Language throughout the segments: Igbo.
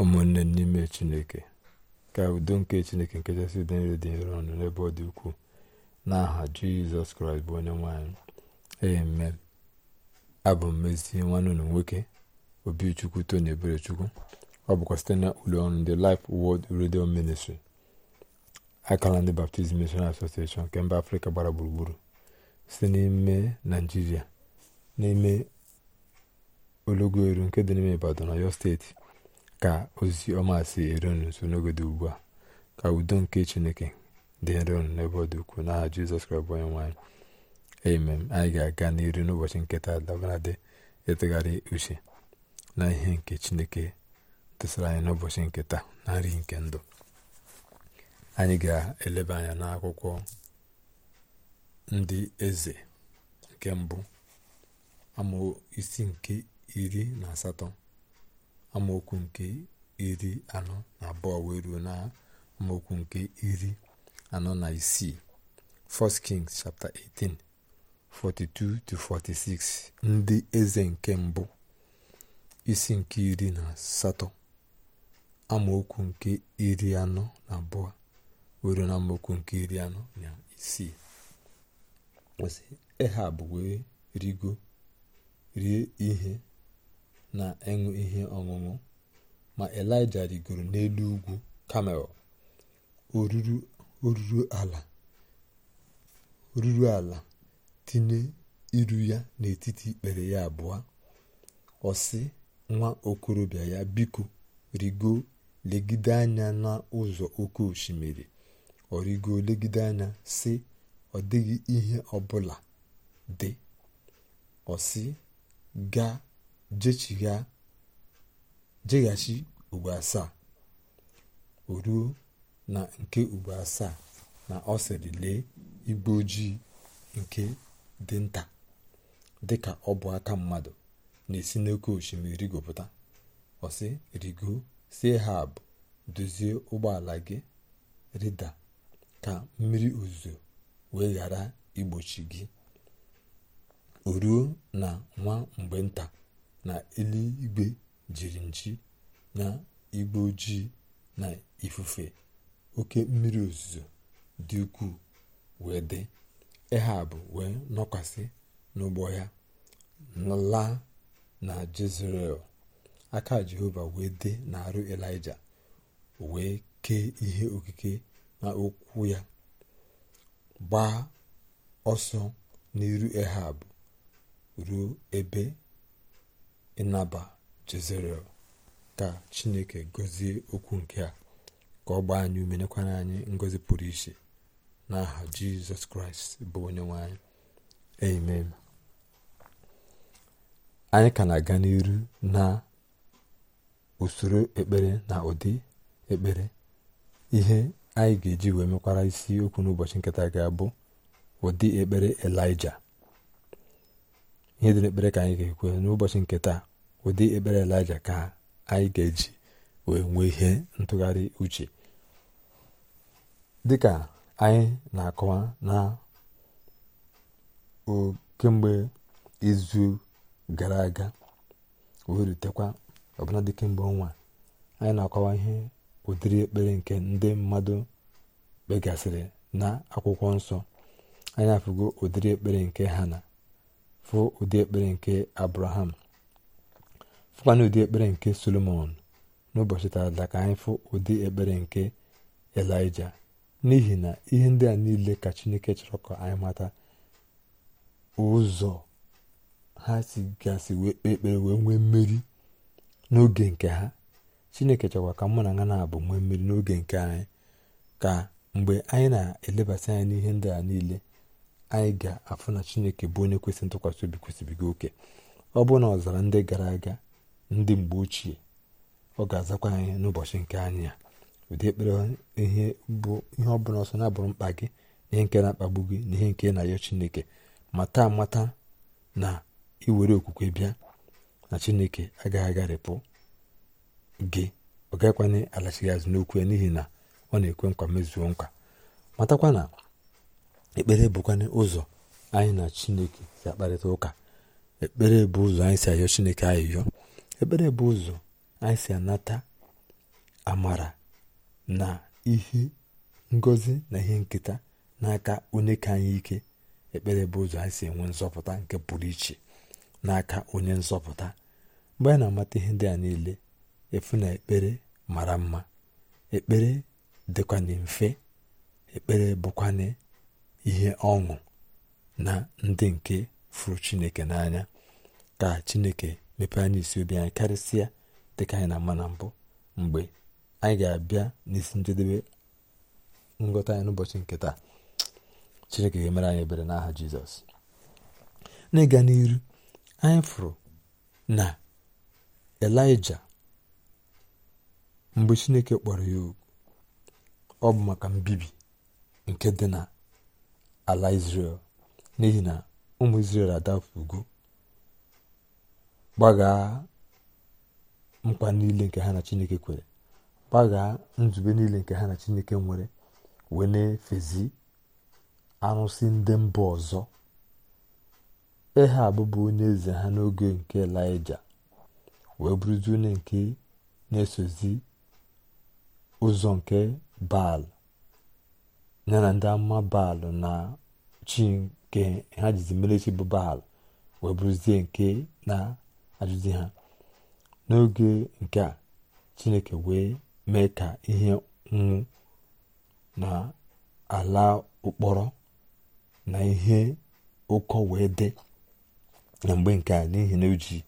ụmụnne n'ime chineke ka udo nke chineke nke chasị udo nre dị nro ọnụ n'ebe ọ dị ukwuu aha jizọs kraịst bụ onye nwanyị amen abụ m ezi nwanne ụlọ nwoke obichukwu tony eberechukwu ọ bụkwa site na ụlọ ọrụ ndị Life Word Radio Ministry akara ndị baptizim Missionary Association nke mba afrịka gbara gburugburu site n'ime naijiria n'ime olọgoeru nke dị n'ime ibadan na yo steeti ka ozi ọma si eru unu nso n'ogodo ugbu a ka udo nke chineke dị nro unu n'ebe ọ dị ukwuu n'aha jizọs kraịst bụ onye nwanyị amen anyị ga-aga n'iru n'ụbọchị nketa dabaradị ịtụgharị uche na ihe nke chineke tụsara anyị n'ụbọchị nketa na nri nke ndụ anyị ga-eleba anya n'akwụkwọ ndị eze nke mbụ amụ isi nke iri na asatọ amaokwu nke iri anọ na abụọ wee ruo na amaokwu nke iri anọ na isii 1 Kings chapter 18 42-46 ndị eze nke mbụ isi nke iri na asatọ amaokwu nke iri anọ na abụọ were na amaokwu nke iri anọ na isii kwụsị Ehab wee rigo rie ihe na ịṅụ ihe ọṅụṅụ ma elija rigoro n'elu ugwu kamel oruru ala tinye iru ya n'etiti ikpere ya abụọ ọ nwa okorobịa ya biko rigo legide anya n'ụzọ oke osimiri ọ rigo legide anya sị ọ dịghị ihe ọbụla dị ọ sị gaa jeghachi ugbo asaa o ruo na nke ugbo asaa na ọ sịrị lee igbe ojii nke dị nta dị ka ọ bụ aka mmadụ na-esi n'oke osimiri rigopụta ọsị rigo si hab dozie ụgbọala gị rida ka mmiri ozuzo wee ghara igbochi gị o ruo na nwa mgbe nta na eluigwe jiri nji na igbe ojii na ifufe oke mmiri ozuzo dị ukwuu wee dị ehab wee nọkwasị n'ụgbọ ya laa na jezrel aka jehova wee dị arụ elija wee kee ihe okike na okwu ya gbaa ọsọ n'iru ehab ruo ebe ịnaba jezerel ka chineke gọzie okwu nke a ka ọ gbaa anyị ume anyị ngozi pụrụ iche n'aha jizọs kraịst bụ onye nwanyị. amen anyị ka na-aga n'iru na usoro ekpere na ụdị ekpere ihe anyị ga-eji wee mekwara isi okwu n'ụbọchị nketa ga bụ ụdị ekpere elija ihe dị n'ekpere ka anyị ga-ekwe n'ụbọchị nke taa ụdị ekpere elija ka anyị ga-eji wee nwee ihe ntụgharị uche dịka anyị na-akọwa na kemgbe izu gara aga wee rutekwa ọbụla dị kemgbe ọnwa anyị na-akọwa ihe ụdịrị ekpere nke ndị mmadụ kpegasịrị na akwụkwọ nsọ anyị afụgo ụdịrị ekpere nke ha na fụ ụdị ekpere nke abraham fụkwana ụdị ekpere nke solomon n'ụbọchị taata ka anyị fụ ụdị ekpere nke elija n'ihi na ihe ndị a niile ka chineke chọrọ ka anyị mata ụzọ ha si gasị wee kpee ekpere wee nwee mmeri n'oge nke ha chineke chọkwa ka mụ na ha na-abụ nwee mmiri n'oge nke anyị ka mgbe anyị na-elebasị anya n'ihe ndị a niile anyị ga-afụ na chineke bụ onye kwesịrị ntụkwasị obi gị oke ọ bụ na ọzara ndị gara aga ndị mgbe ochie ọ ga-azakwa anyị n'ụbọchị nke anyị a ụdị ekpere ihe bụ ihe ọ bụla ọsọ na-abụrụ mkpa gị na ihe nke na-akpagbu gị na ihe nke na-ayọ chineke mata amata na iwere okwukwe bịa na chineke agaghị agharịpụ gị ọ gaghịkwana alachighị azụ n'okwu ya n'ihi na ọ na-ekwe nkwa mezuo nkwa matakwa na ekpere bụkwana ụzọ anyị na chineke si akparịta ụka ekpere bụ ụzọ anyị si ayọ chineke ayịyọ ekpere bụ ụzọ anyị si anata amara na ihe ngozi na ihe nketa n'aka onye ka anyị ike ekpere bụ ụzọ anyị si enwe nzọpụta nke pụrụ iche n'aka onye nzọpụta mgbe anyị na-amata ihe ndị a niile efu na ekpere mara mma ekpere dịkwana mfe ekpere bụkwana ihe ọṅụ na ndị nke fụrụ chineke n'anya ka chineke mepee anyị isi obi anyị karịsịa dịka anyị na mma na mbụ mgbe anyị ga-abịa n'isi njedebe ngọta anyị n'ụbọchị nke taa chineke ga-emere anyị ebere n'aha jizọs n'ịga n'iru anyị fụrụ na elija mgbe chineke kpọrọ ya ọ bụ maka mbibi nke dị na ala Izrel n'ihi na ụmụ Izrel adafugo gbagaa mkpa niile nke ha na Chineke kwere gbagaa nzube niile nke ha na Chineke nwere wee na-efezi arụsị ndị mba ọzọ ehe abụbụ onye eze ha n'oge nke Elaịja wee bụrụzi onye nke na-esozi ụzọ nke Baal ya na ndị ama baalụ na chi ha jizi mere bụ baal wee bụrụzie nke na-ajụzi ha n'oge nke a chineke wee mee ka ihe nwụ na ala ụkpọrọ na ihe ụkọ wee dị na mgbe nke a n'ihi na o ji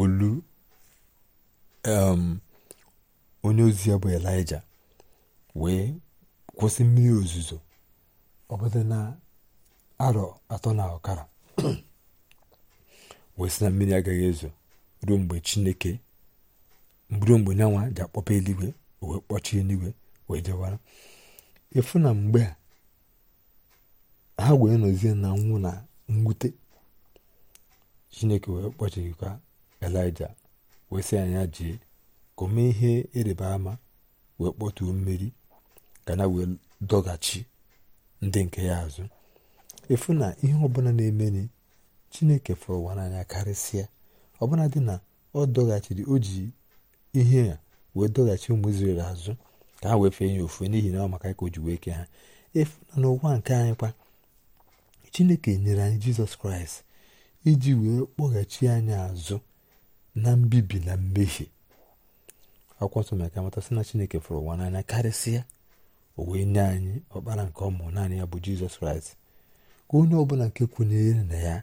olu um, onye ozi ya bụ elija wee kwụsị mmiri ozuzo ọbụdị na arọ atọ na ọkara wee na mmiri agaghị ezo ruo mgbe chineke ruo mgbe nyanwa ji akpọpa eluigwe wee kpọchie eluigwe wee jewara ịfụ na mgbe ha wee nọzie na nwụ na mwute chineke wee kpọchikwa elija wee sị anya jee ka o ihe ịrịba ama wee kpọtuo mmiri ka na wee dọghachi ndị nke ya azụ efu na ihe ọbụla na-emeni chineke fụrụ ụwa n'anya karịsịa ọbụla dị na ọ dọghachiri o ji ihe a wee dọghachi ụmụ Izrel azụ ka ha wee fee ya ofu n'ihi na ọ maka ka o ji wee ke ha efu na n'ụwa nke anyị kwa chineke nyere anyị jizọs kraịst iji wee kpọghachi anyị azụ na mbibi na mmehie akwụkwọ nsọ mere ka amata sị na chineke fụrụ ụwa n'anya karịsịa o wee nye anyị ọkpara nke ọmụ naanị ya bụ jizọs kraịst ka onye ọbụla nke kwenyere na ya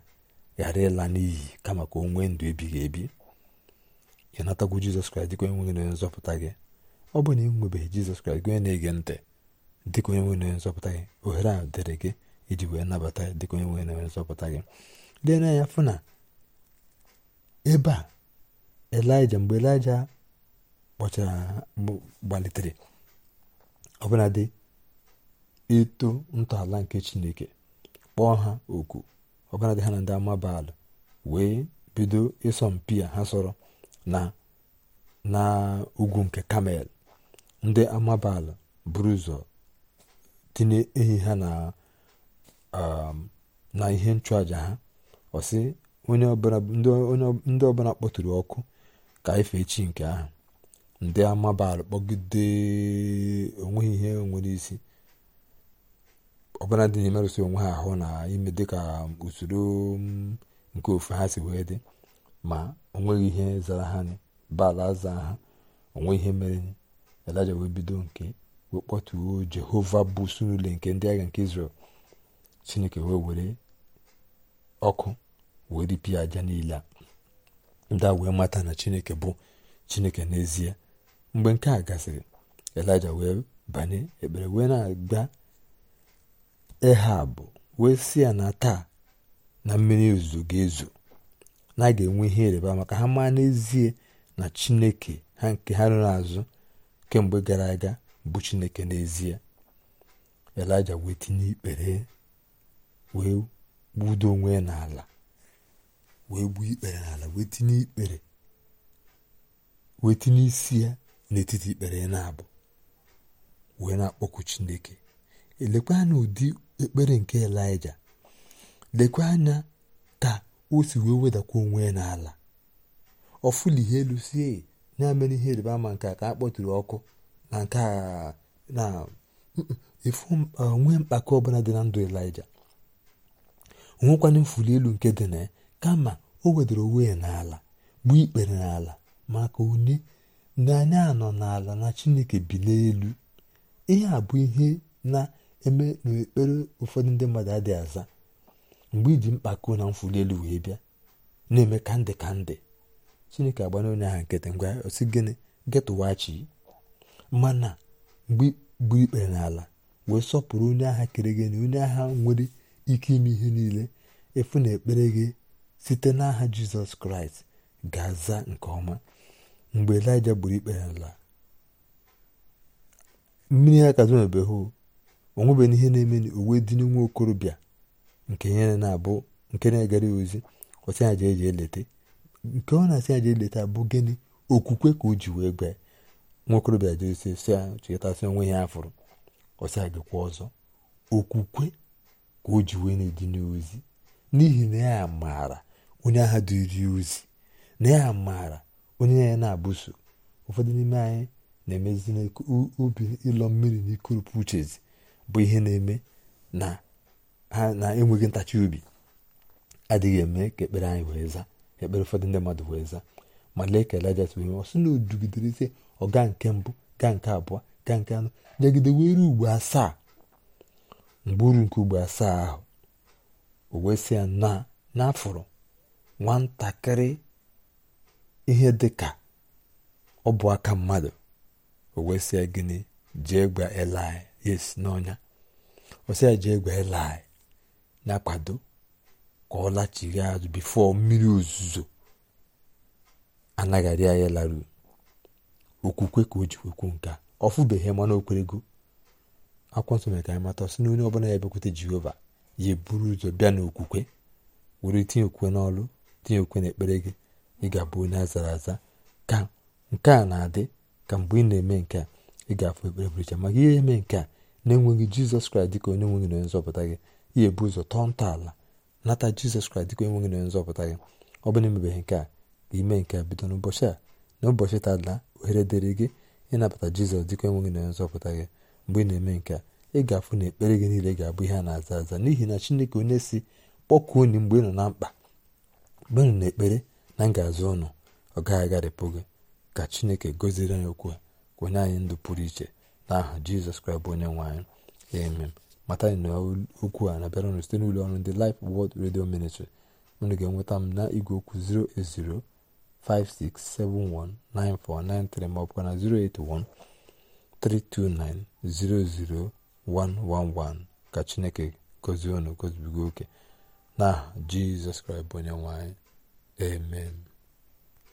ghara ịla n'iyi kama ka o nwee ndụ ebighị ebi ị natagwu jizọs kraịst dịka onye nwe gị nzọpụta gị ọ bụ na ị nwebeghị jizọs kraịst gị onye na-ege ntị dịka onye nwe nzọpụta gị ohere a dịrị gị iji wee nabata ya dịka onye nwe nzọpụta gị lee n'anya fụ na ebe a elija mgbe elija kpọchara gbalitere ọbụladị ịtụ ntọala nke chineke kpọọ ha oku ọbụladị ha na ndị amabaalụ wee bido ịsọmpi a ha sọrọ na na ugwu nke kamel ndị amabaalụ buru ụzọ tinye ha na um, ihe nchụaja ha ọsị onye ọbụla kpọtụrụ ọkụ ka efe chi nke ahụ ndị amabara kpọgide onweghị ihe nwere isi ọbụla dị na emerụsị onwe ha ahụ na ime dịka usoro mm, nke ofu ha si wee dị ma onweghị ihe zara ha bala aza ha onwe ihe mere elaja wee bido nke wee kpọtuo jehova bụ sunule nke ndị agha nke israel chineke wee were ọkụ wee ripịa aja niile a ndị a wee mata na chineke bụ chineke n'ezie mgbe nke a gasịrị elija wee banye ekpere wee na-agba ehab wee si ya na taa na mmiri ozuzo ga-ezo na a ga-enwe ihe ịrịba maka ha maa n'ezie na chineke ha nke ha rụrụ azụ kemgbe gara aga bụ chineke n'ezie elija wee tinye ikpere wee gbudo onwe n'ala wee gbuo ikpere n'ala wee tinye ikpere wee tinye isi ya n'etiti ikpere na abụ wee na-akpọku chineke elekwa anya ụdị ekpere nke elija lekwa anya ka o si wee wedakwa onwe ya n'ala ọfụli ihe elu sie ya mere ihe ịrịba ama nke a ka a kpọtụrụ ọkụ na nke na efu onwe mkpakọ ọbụla dị na ndụ elija onwekwana mfuli elu nke dị na ya kama o wedara onwe ya n'ala gbuo ikpere n'ala maka onye na anọ n'ala na chineke bi n'elu ihe a bụ ihe na-eme n'ekpere ụfọdụ ndị mmadụ adịghị aza mgbe iji mkpako na mfuli elu wee bịa na-eme ka ndị ka ndị chineke agbana onye aha nkịtị ngwa osi gịnị getụwachi mana mgbe gbu ikpere n'ala wee sọpụrụ onye agha kere gị na onye agha nwere ike ime ihe niile efu na ekpere gị site n'aha jizọs kraịst ga-aza nke ọma mgbe elija gburu ikpe ya nla mmiri ya ka zomebeghụ onwebeghị ihe na-eme uwe dị nwa okorobịa nke ya na-abụ nke na-egara ya ozi ọsị ya eji jee nke ọ na-asị ya eleta leta bụ gịnị okwukwe ka o ji wee gba nwa okorobịa jere si ya chetasị onwe ya afụrụ ọsị ya gịkwa ọzọ okwukwe ka o ji wee na-eji n'ozi n'ihi na ya maara onye agha dịri ozi na ya maara onye ya na-abụso ụfọdụ n'ime anyị na-emezi ubi ịlọ mmiri na ikurupu uchezi bụ ihe na-eme na ha na-enweghị ntachi obi adịghị eme ka ekpere anyị wee zaa ekpere ụfọdụ ndị mmadụ wee zaa ma lee ka Elija tụrụ ọ sị na o dugidere ọga nke mbụ gaa nke abụọ gaa nke anọ nyagide were ugbo asaa mgbe uru nke ugbo asaa ahụ o wee na n'afọrọ nwatakịrị ihe dị ka ọ bụ aka mmadụ o wee sịa gịnị jee gba elai yes n'ọnya ọ ya jee gba elai na-akwado ka ọ lachiri azụ bifo mmiri ozuzo anaghị arịa ya laru okwukwe ka o ji kwekwu nke a ọ fụbeghị mana o akwụkwọ nsọ mere ka anyị mata sị n'onye onye ọbụla ya bịakwute jehova ya eburu ụzọ bịa n'okwukwe were tinye okwukwe n'ọlụ tinye okwukwe n'ekpere gị ị ga-abụ onye azara aza ka nke a na-adị ka mgbe ị na-eme nke a ị ga-afụ ekpere maka ihe eme nke a na-enweghị jizọs kraịst dịka onye nweghị na onye nzọpụta gị ihe ụzọ tọọ ntọala nata jizọs kraịst dịka onye nweghị na onye nzọpụta gị ọ na emebeghị nke a ka ime nke a bido n'ụbọchị a na ụbọchị tadala ohere dịrị gị ịnabata jizọs dịka enweghị na onye nzọpụta gị mgbe ị na-eme nke a ị ga-afụ na ekpere gị niile ga-abụ ihe a na-aza aza n'ihi na chineke onye si kpọkuo onye mgbe ị nọ na mkpa mgbe ị nọ na ekpere na ngazi ụnụ ọ gaghị agharịpụ gị ka chineke goziri anyị okwu ka anyị ndụ pụrụ iche n'aha jizọs kraịst bụ onye nwe anyị emem mata anyị na okwu a na-abịara ụnụ site n'ụlọ ọrụ ndị lif Word Radio Ministry unu ga-enweta m na igwe okwu 08056719493 ma ọ bụkwa na 08132900111 ka chineke gozie ụnụ gozibigo oke aha jizọs kraịst bụ onye nwe anyị Amen.